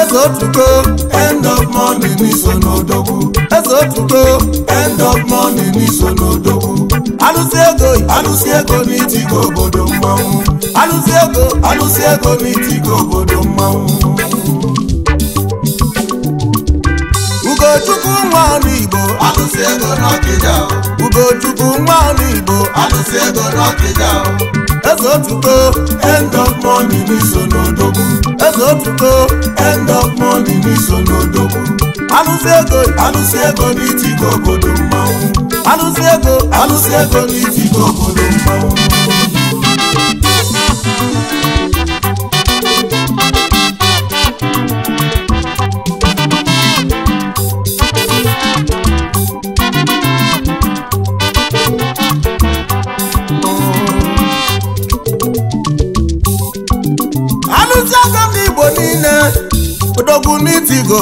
eze otuto end of morning n'iso n'odogwu eze otuto end of morning n'iso n'odogwu alụsị ego alụsị ego n'itigo obodo mmanwụ alụsị ego alụsị ego n'itigo obodo mmanwụ Ugochukwu nwa ọnụ Igbo alụsị ego n'Ọkịja Ugochukwu nwa ọnụ Igbo alụsị ego n'Ọkịja eze otuto end of money eze otuto end of money n'iso alụsị ego alụsị ego n'itigo obodo mmanwụ alụsị ego alụsị ego n'itigo obodo mmanwụ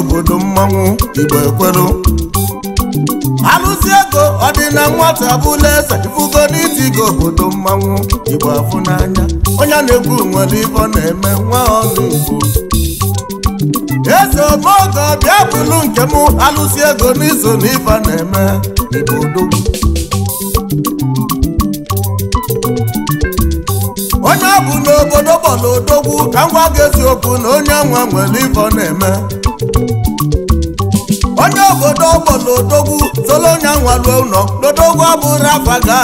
obodo mmanwụ igbo ekwelu alụsi ọdịna nwata bụla eze ifugoro idiga obodo mmanwụ igbo afụ n'anya onye na-ekwu nwere ibe na-eme nwa ọnụ ugbo. eze omeoge bịa bụrụ nke m alụsi ego na ibe na-eme igbo odogwu onye ọ bụ n'obodo bọla odogwu ka m gwa gị eziokwu na onye nwa nwere ibe na-eme obodo ọgbọ n'odogwu tolonya nwalu ụlọ n'odogwu abụrụ afa gị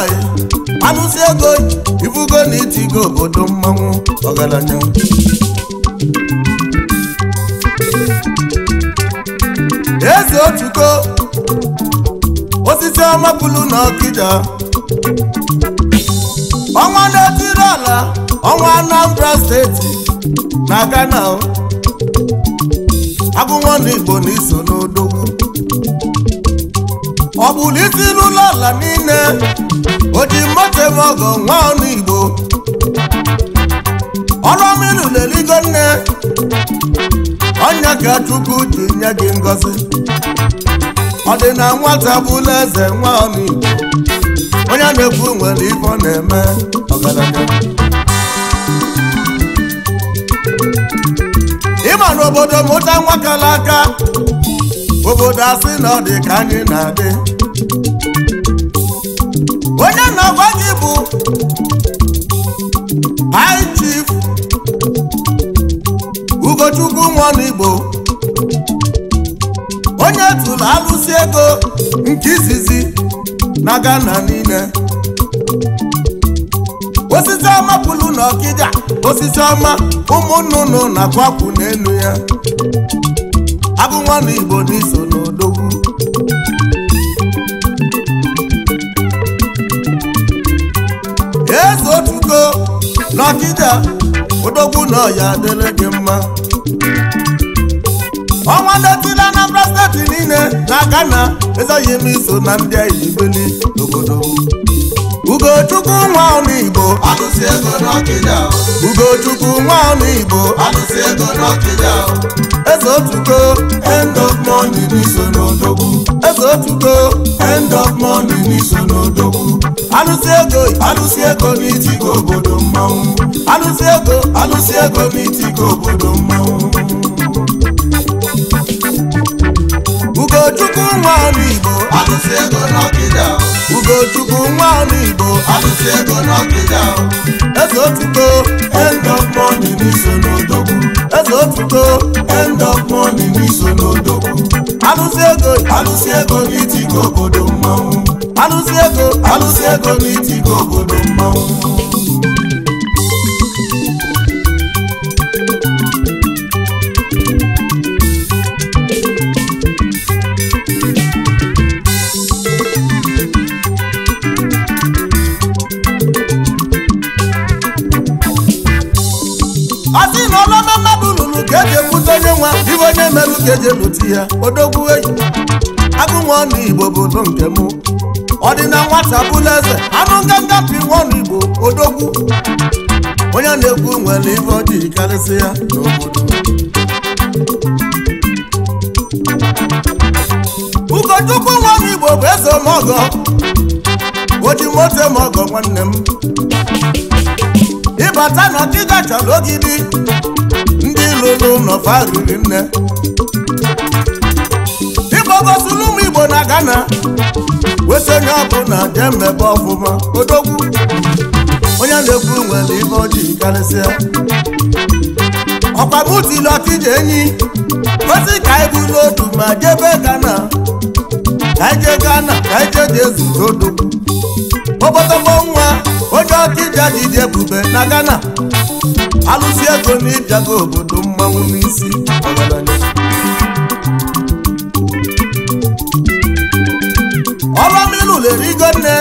anụsi ego ibugo na itigo obodo mmanwụ ọgaranya eze otuko osisi ọmapụlụ na ọkịja ọnwa na-etiri ala ọnwa Anambra steeti na Ghana agụnwa na Igbo na iso n'odo ọ bụrụ itilu n'ala niile oji moto ọgọ nwa ọnụ igbo ọrụ mmiri na-eligo nne ọnya ka chukwu ji nye gị ngọzi ọ dị na nwata bụla eze nwa ọnụ igbo onye na-ekwu nwere ife na-eme ọgaranya ịma n'obodo mụta nwakala aka obodo asị na ọ dị ka anyị na-adị onye na-agwa gị bụ high chief ugochukwu nwanigbo onye tụrụ alụsị ego nke izizi na Ghana niile osisi ọma pụlụ na ọkịda osisi ọma ụmụ nnụnụ na-akwapụ n'elu ya ọbụrụ nwanne igbo n'iso n'odogwu eze otuko n'ọkịja odogwu na ọya adịrị gị mma ọnwa detila Anambra steeti niile na na ezoghị m iso na ndị aibeli n'obodo Ugochukwu nwa ọnụ Igbo agụsị ego n'Ọkịja Ugochukwu nwa ọnụ Igbo agụsị ego n'Ọkịja Eze otuto end of money n'iso n'odogwu Eze otuto end of money n'iso n'odogwu Alụsị ego alụsị ego n'itigo obodo mmanwụ Alụsị ego alụsị ego n'itigo obodo mmanwụ Ugochukwu nwa ọnụ Igbo agụsị ego n'Ọkịja ugochukwu nwa ọrụ igbo asụsụ ego n'ọkịda eze otuto end of money n'iso n'odogwu eze otuto end of money n'iso n'odogwu alụsị ego alụsị ego n'itigo obodo mmanwụ alụsị ego alụsị ego n'itigo obodo mmanwụ si eji ebute ya odogwu enyi agụnwa igbo bụ nke m ọ dị na nwata bụla eze anụ nganga pi nwa igbo odogwu onye na-ekwu nwere ife ọ dị karịsị ya n'obodo ụkọchukwu nwa igbo bụ eze mọgọ oji moto mọgọ nwanne m ịbata na ọkịga chọrọ ogidi ndị lụrụ n'ọfa riri nne gosila ụmụ igbo na Ghana weta onye ọbụla jee mmebe ọfụma odogwu onye na-ekwu nwere ibe ojii karịsịa ọkwa butili ọkije enyi kwesị ka anyị bụ n'otu ma jebe Ghana ka ije jee Ghana ka ije jee jee zuru obodobo nwa onye ọkịja jide ebube na Ghana alụsi ego na obodo mmanwụ n'isi erigo nne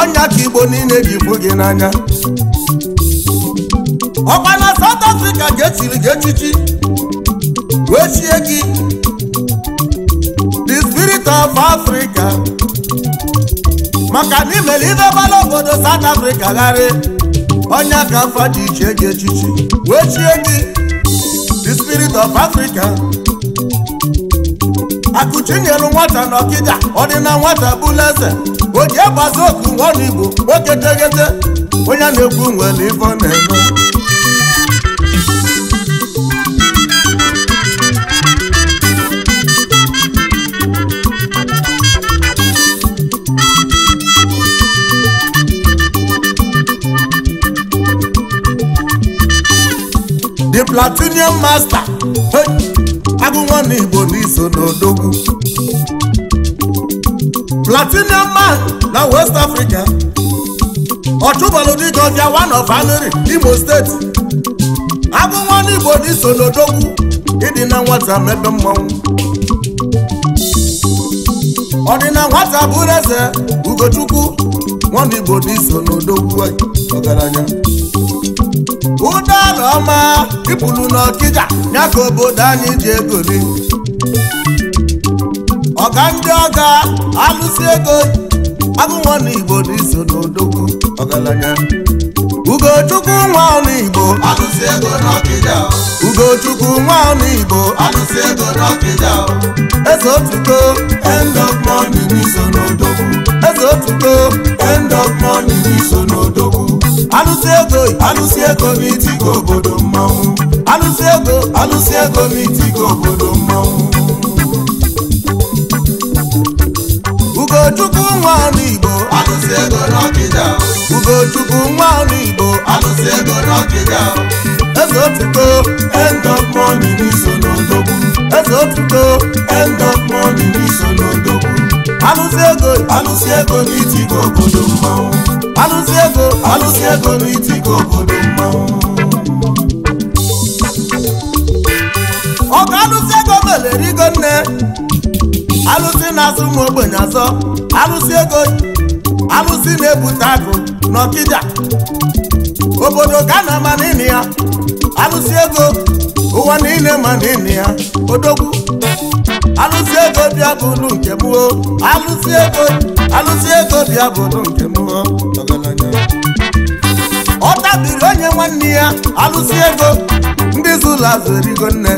ọnya ka igbo niile ji fụ gị n'anya ọkwa na South ga-etiri gị echichi wee chie gị the spirit of Africa maka na imere ibe bara obodo South Africa gharị onya ka afọ ji iche gị echichi wee chie gị the spirit of Africa akụchi nyelu nwata na ọdịna nwata bụla eze oji agbazi oku nwana igbo nwoke tegete onye na-ekwu nwere ife ọ na-eme the platinum master Omenala Igbo n'iso n'odogwu Platinum man na West Africa Ọchụbalụ dịka ọbịa one of anri Imo steeti agụnwa n'Igbo n'iso n'odogwu ịdị na nwata mepe dị ọdịna nwata bụrụ eze Ugochukwu nwa Igbo n'iso n'odogwu ọgaranya ụdọọla ọma ịpụrụ n'ọkịja ya ka obodo anyị ji egoli ọga ndị ọga alụsi ego agụnwa n'igbo n'iso n'odogwu ọgaranya ugochukwu nwa n'igbo n'ọkịja ugochukwu nwa n'igbo alụsi n'ọkịja n'iso n'iso alụsị ego alụsị ego m itigo obodo mmanwụ alụsị ego alụsị ego m itigo obodo mmanwụ ugochukwu nwa ọrụ igbo alụsị ego n'ọkịja ugochukwu nwa ọrụ igbo alụsị ego n'ọkịja eze otuto end of money n'iso n'odogwu eze otuto end of money n'iso alụsị ego n'itigo obodo mmanwụ alụsị ego alụsị ego n'itigo obodo alụsị ego nne alụsị na-azụ ụmụ ogbenye azọ alụsị ego alụsị na-ebute akụ n'ọkịja obodo ka na ama ya alụsị ego ụwa niile ma n'ịnị ya odogwu Alusi ego bịa bụrụ nke m alụsị ego alụsị ego bịa bụrụ nke m ọ tabiri onye nwanne ya Alusi ego ndị zụlụ azụ erigo nne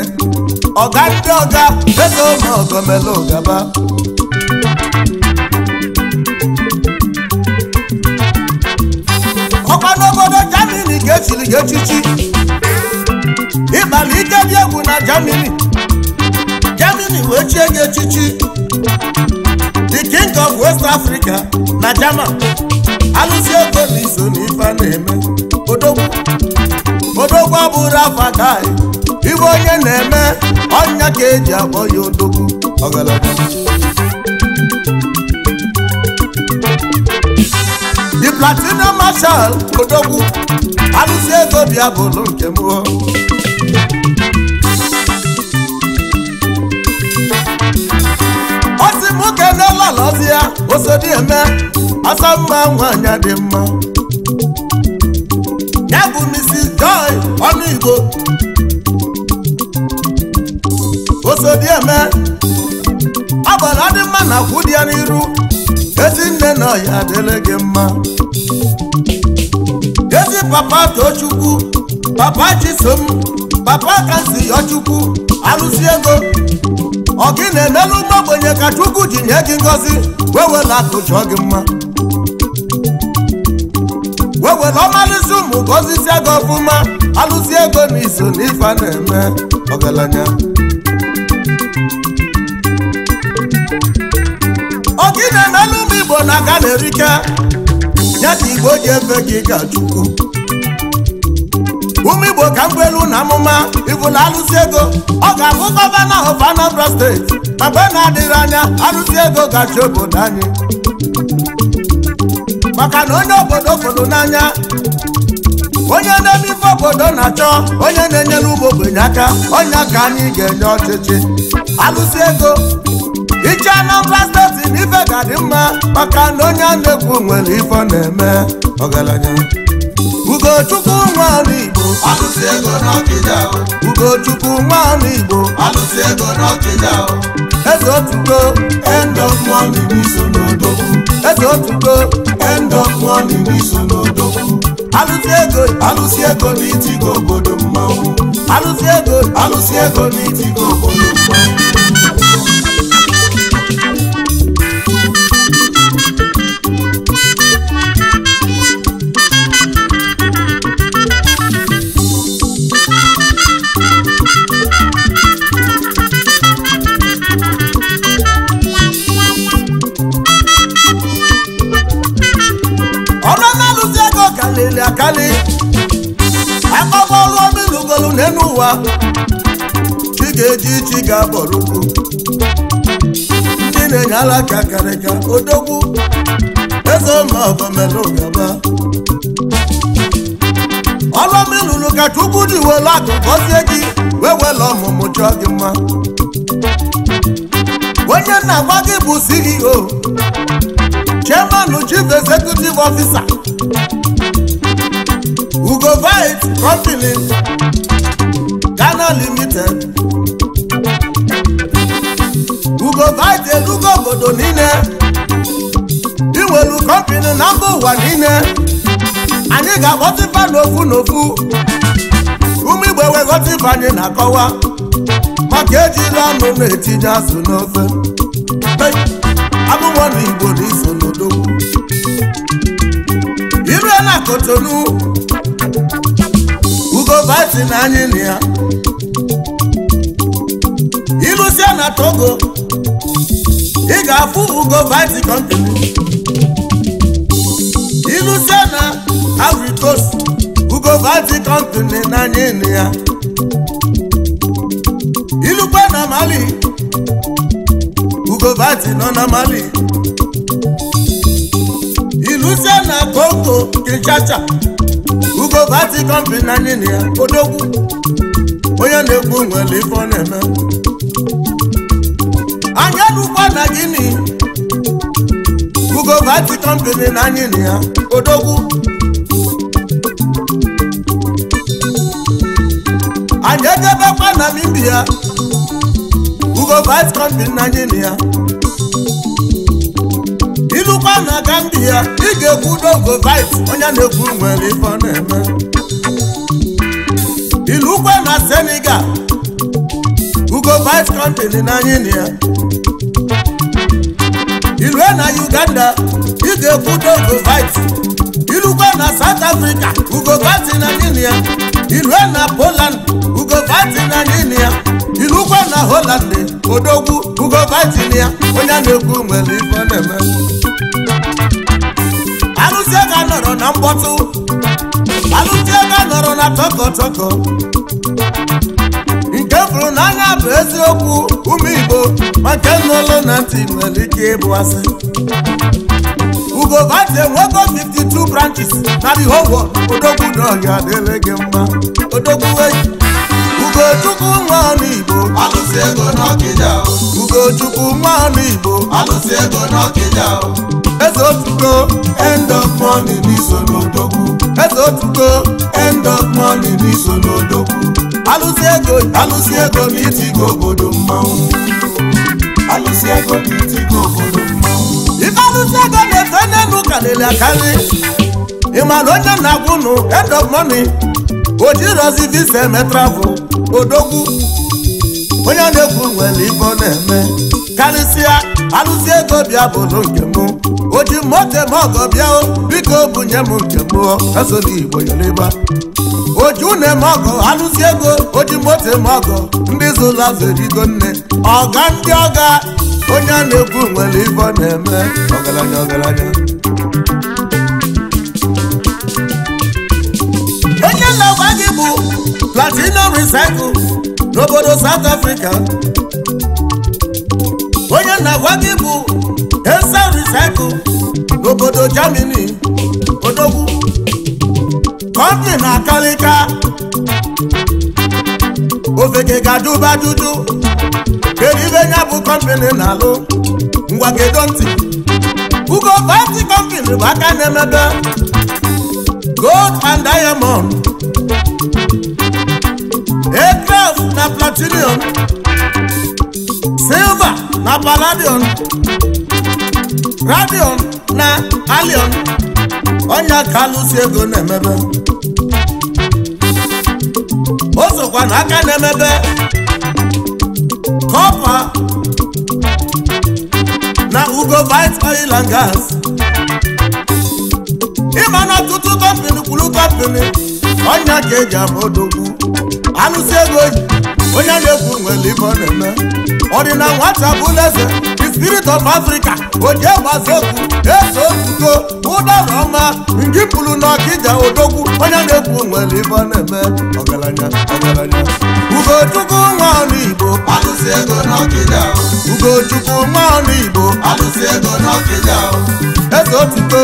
ọga ndị ọga onye ma ọgọmela ụgaba n'obodo jamini ga-echiri gị echichi ịbala ike dị egwu na jamini Germany wee chie nye echichi the king of West Africa na German alụsi ego na iso na ife na-eme odogwu odogwu abụrụ afa ibe onye na-eme ọnya ka eji akpọ ya odogwu ọgalaga the platinum marshal odogwu alụsi ego bịa bụrụ nke mụọ ọsọ mma nwanyị dị mma ya bụ Mrs Joy ọnụ Igbo osodieme ọbara dị mma na akwụ dị ya n'iru ezi nne na ọya adịle gị mma ezi papa Tochukwu papa Chisom papa kasi Yọchukwu arụsị ego ọ gị na-emelụ mgbe ka Chukwu ji nye gị ngọzi wee wela akụ chọọ gị mma were ọmalụzi ụmụ ka ozizie gị ọfụma alụzi ego na iso na ife na-eme ọgaranya ogine n'elu igbo na ga na-erike nye ka igbo ji efe gị ka chukwu ụmụ igbo ka mgbelu na amụma ịbụla alụsi ego ọ ga-abụ gọvanọ of Anambra steeti mgbe na-adịghị anya alụsi ego gachi obodo anyị maka na onye obodo fụrụ n'anya onye na-eme ife obodo na-achọ onye na-enyere ụmụ ogbenye aka onye ka anyị ga-enye ọchịchị alụsị ego iche Anambra steeti na ife ga dị mma maka na onye na-ekwu nwere ife na-eme ọgaranya Ugochukwu nwaọrụ Igbo alụsị ego n'ọkịja Ugochukwu nwaọrụ Igbo alụsị ego n'ọkịja eze otuto end of money n'iso n'odogwu ego otugo end of money n'iso n'odogwu Alusi ego alusi ego n'itigo obodo mmanwụ Alusi ego alusi ego n'itigo obodo mmanwụ bie n'ụwa chi ga-eji chi ga abọrụ ugwu chi na-enye alaka karịka odogwu eze ụlọọgọmelụgaba ọlọmi lụrụ ka chukwu diwelu akụ gọzie gị wee wela ọmụmụ chọọ gị mma onye na-agwa gị bụ CEO chairman chief executive officer ugo vit company China Limited ugo vite obodo niile inwelu kọmpini na mba ụwa niile anyị ga-akpọtịfa n'ofu n'ofu ume igbo weghọta ife anyị na-akọwa maka ejila anụ na-etinye azụ n'ofe abụmọ na igbo na iso n'odogwu irue na kotonu ugo vite na anyị na ya na Togo ị ga-afụ ugo vice continent ilusie na Ivory ụgọ ugo vice continent ya na Mali ugo vice nọ na Mali na koko Kinshasa ugo ya odogwu onye na-ekwu nwere akwụkwọ na gịnị ugobati kọmpani na anyị na ya odogwu anyị ejebekwa na india ugobati kọmpani na anyị na ya ilụkwa na gambia ị ga-ekwu dogovite onye na-ekwu nwere ife na-eme ilụkwa na senegal ugo vice company na anyị na ya ilu e na uganda ị ga-ekwudo govit irukwa na south africa ugovati na ninia e na poland ugovati na ninia irukwa na holland odogwu ugovati na ya onye na-ekwu nwere ife na-eme arụzie ga nọrọ na mkpọtụ arụzie ga nọrọ na tọkọtọkọ chefuru na agha bụ eziokwu ụmụ igbo maka nọlọ na ntị nwere ike ịbụ asị ugo vante nwoke 52 branches na the whole world odogwu na ọhịa adịrị gị mma odogwu eji ugochukwu nwa ọnụ igbo alụsị ego n'ọkịja ugochukwu nwa ọnụ igbo alụsị ego n'ọkịja eze otugo end of money n'iso n'odogwu eze otugo end of money n'iso n'odogwu alụsị ego alụsị ego na itigo obodo mmanwụ alụsị ego go. itigo obodo mmanwụ ife alụsị ego na-efe n'elu karịrị akarị ịmara onye na-agwụ end of money o jirọzi visa eme travel odogwu onye na-ekwu nwere ife na-eme karịsịa alụzi ego bịa bụ nke m oji moto eme ọgọ bịa biko bunye m nke m ezoro igbo yoriba oji unu eme ọgọ alụzi ego oji moto eme ọgọ ndị zụrụ azụ erigo nne ọga ndị ọga onye a na-ekwu nwere ife na-eme ọgaranya ọgaranya onye na gị bụ platinum recycle n'obodo South Africa onye na-agwa gị bụ ese recycle n'obodo Germany odogwu kọmpị na-akalịka ofeke ga-adụba dudu kedu ya bụ kọmpini na-alụ ngwa ntị ugo vati kọmpini bụ aka na-emebe gold and diamond na platinum silva na palladium radion na allium ọnyá ka alụsi ego na-emebe o sokwa na aka na-emebe kọpa na ugo bite oil gas ịma na ọtụtụ kọmpini kwuru kọmpini ọnya ka eji ama alụsị ego oyi onye na-ekwu nwere ife ọ na-eme ọdịna nwata the spirit of africa oje gbazi okwu eso otuto ụdọrọma ngị na n'ọkịja odogwu onye na-ekwu nwere ibe ọ na-eme ọgaranya ọgaranya ugochukwu nwa ọnụ igbo n'ọkịja ugochukwu nwa ọnụ igbo alụsị n'ọkịja eze otuto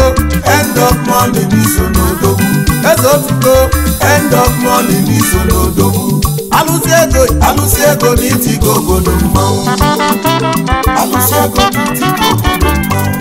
end of money n'iso n'odogwu eze otuto end of money alụsị ego alụsị ego n'itigo obodo mmanwụ alụsị ego n'itigo obodo mmanwụ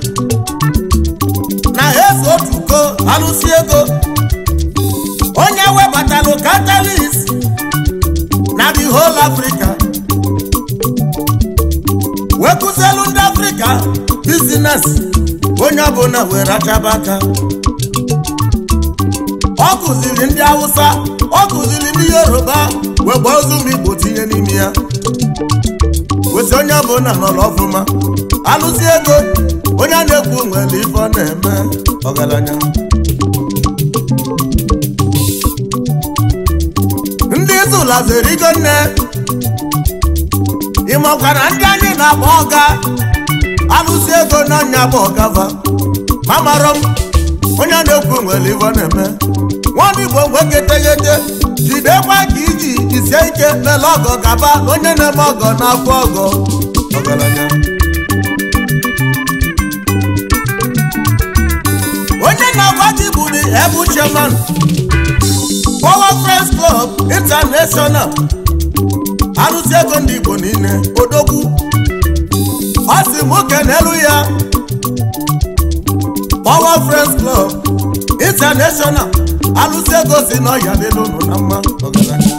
na efu otu alụsi ego onye webatalụ catalyst na the whole Africa wekụzielu ndị Africa business onye ọbụla were achaba aka ọ kụziri ndị Hausa ọ kụziri ndị Yoruba wee gbaa ozu tinye n'ime ya wesi onye ọbụla nọrọ ọfụma alụsi ego onye na-ekwu nwere ife ọ na-eme ọgaranya ndị ike nne ịmakwa na ndị anyị na-agba ọga alụsi ego n'anya bụ ọgava ma mara m onye na-ekwu nwere ife ọ na-eme nwaanyị igbo nweketeghete jidekwa ka iji isie ike mele ọgọ gaba onye na-eme ọgọ na-afụ ọgọ ọgaranya ndị na-agbaji bụ the ebu chairman Power Friends Club International arụsị ego ndị Igbo niile odogwu ọ sị nwoke n'elu ya Power Friends Club International arụsị ego si n'ọhịa dị n'ụlọ na mma ọgaranya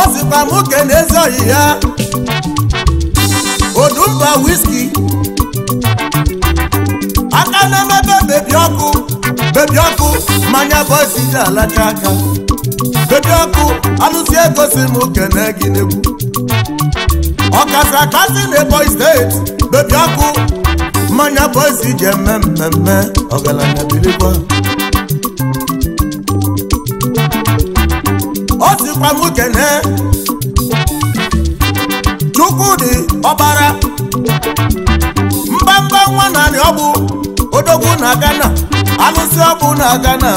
ọ sịkwa nwoke n'ezi ọhịa ya odumba whisky na-emebe bebi ọkụ bebi ọkụ mmanya bọzi ji alacha aka bebi ọkụ alụsi egosi m kene gị n'egwu ọkasị akasị na steeti bebi ọkụ mmanya bọzi ji eme mmemme ọgaranya birikwa o sikwa m kene Chukwudi ọbara mbamba nwa narị ọgbụ odogwu na Ghana alụsị ọbụ na Ghana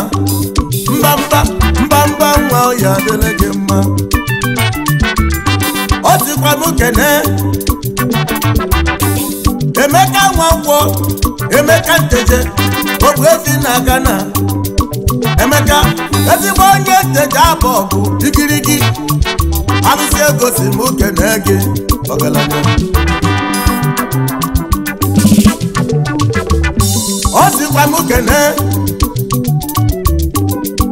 mbamba mbamba nwa ya adịrị gị mma o tikwanụ kene Emeka nwankwọ Emeka nteje ọbụ ezi na Ghana Emeka ezigbo onye nteje abụ ọgụ igirigi alụsị egosi si m kene gị ọgaranya ọ sịkwa m kene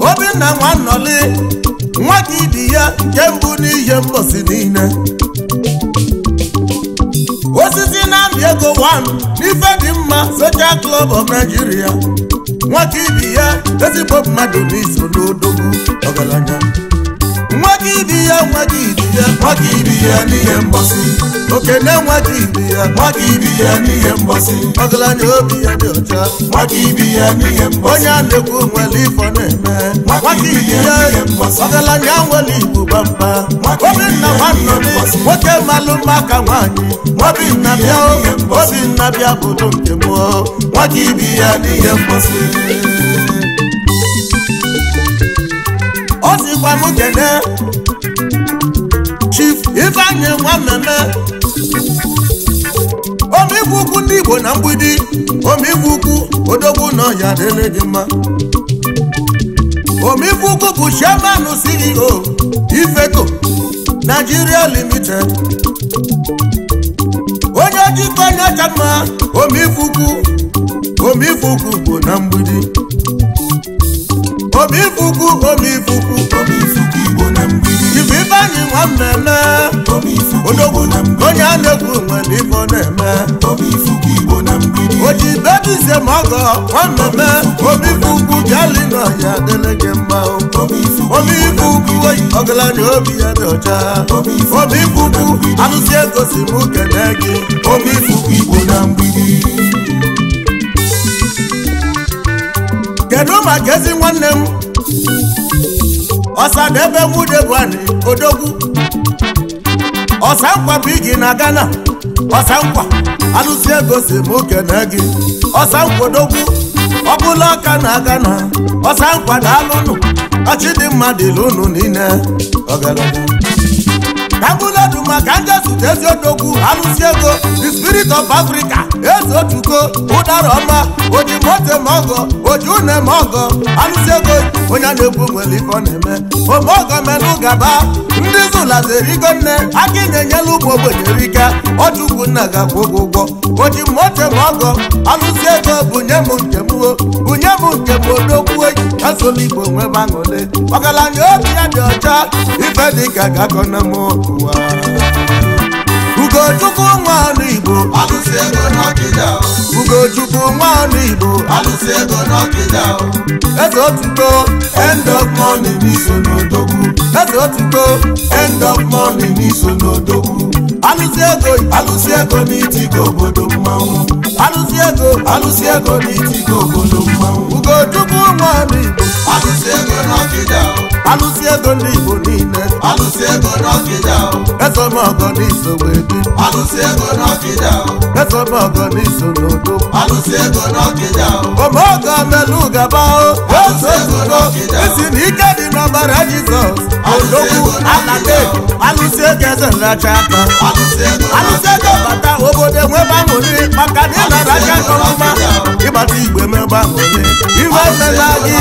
obinna nwa nnọli nwa ya nke mbụ n'ihe mposi niile osisi na-amị ego 1 n'ife dị mma Social Club of Nigeria nwata ibi ya ezigbo mmadụ n'iso n'odogwu ọgaranya ibi ya nwaghị ibi ya nwaghị ibi ya n'ihe mgbọsị okene nwaghị ibi ya nwaghị ibi ya n'ihe mgbọsị ọgaranya obi ya dị ọcha nwaghị ibi ya n'ihe mgbọsị onye a na-ekwu nwere ifo na-eme nwaghị ibi ya ọgaranya nwere igbo gbamba obinna nwanne nwoke malụ mma ka nwaanyị obinna bịa obinna bịa bụrụ nke mụọ nwaghị ibi ya n'ihe mgbọsị ọ sịkwa m kene onye nwa mmemme omegwu ukwu ndị Igbo na mgbidi omegwu ukwu odogwu n'ọhịa dịrị gị mma omegwu ukwu bụ chairman CEO Ifeco Nigeria Limited onye ojikọ nyacha mma omegwu ukwu omegwu ukwu bụ na mgbidi omegwu ukwu omegwu ukwu omegwu enyi nwa mmemme odogwu onye a na-ekwu nwe na na-eme o ji bebize ma ọgọ nwa mmemme obife ugwu bịali na ọya adịla gị mma obife ugwu oyi ọgaranya obi ya dị ọcha obife ugwu anụsi egosi m kene gị obife ugwu igbo na mgbidi kedu maka ezi nwanne m ọsadebe wudebuani odogwu nkwa bụ igi na Ghana ọsankwa alụsi ego si m kene gị ọsankwa odogwu ọbụla ọka na Ghana ọsankwa daalụnụ dị mmadụ ilu niile tabuledu maka ndị zute ezi odogwu alụsi ego the spirit of africa eze otuko ụdara ọma oji mote mọgọ oji une mọgọ alụsi ego onye na-egbu nwere ife ọ na-eme omeogo menụ gaba ndị zụlazerigo nne aka ịna-enyela ụmụ ogbenye rike ọchukwu nna ga-akwụ ụgwọ ụgwọ oji mote mọgọ alụsi ego bunye m nke m bunye m nke m odogwu eji igbo nwebe aṅụle ọgaranya obi ya dị ọcha ife dịka gakọna m ụwa Ugochukwu nwaanụ Igbo alụsị ego n'Ọkịja Ugochukwu nwaanụ Igbo alụsị ego n'Ọkịja eze otuto end of money n'iso n'odogwu eze otuto end of money n'iso n'odogwu ni bodo alụsi ego alụsi ego n'itigo obodo mmanwụ alụsi ego ni, ego n'itigo obodo mmanwụ ugochukwu nwa igbo alụsi ego n'ọkịda alụsi ego ndị igbo niile alụsi ego n'ọkịda ezọmọgọ n'iso wee bi alụsi ego n'ọkịda ezọmọgọ n'iso n'udo alụsi ego n'ọkịda omeogo melu gaba o alụsi ego n'ọkịda isi na ike dị n'ọbara jizọs odogwu alade alụsi ego eze nracha aka alụsị ego bata obodo enwebe aṅụrị maka na ịnara aka nkọrọma ịgbata igwe meba aṅụrị iwe emela gị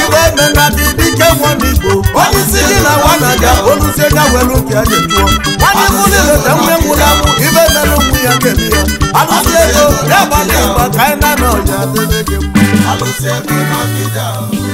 iwe emela gị dike nwa n'igbo onye isi gị na nwa na ga olusi ego welu nke ya ga-ejuo nwanne m nileta nwe nwụrụ anwụ ibe emela nwu ya ga ya alụsị ego ya gbata ịgba ka anyị na-anọ ya adịbe gị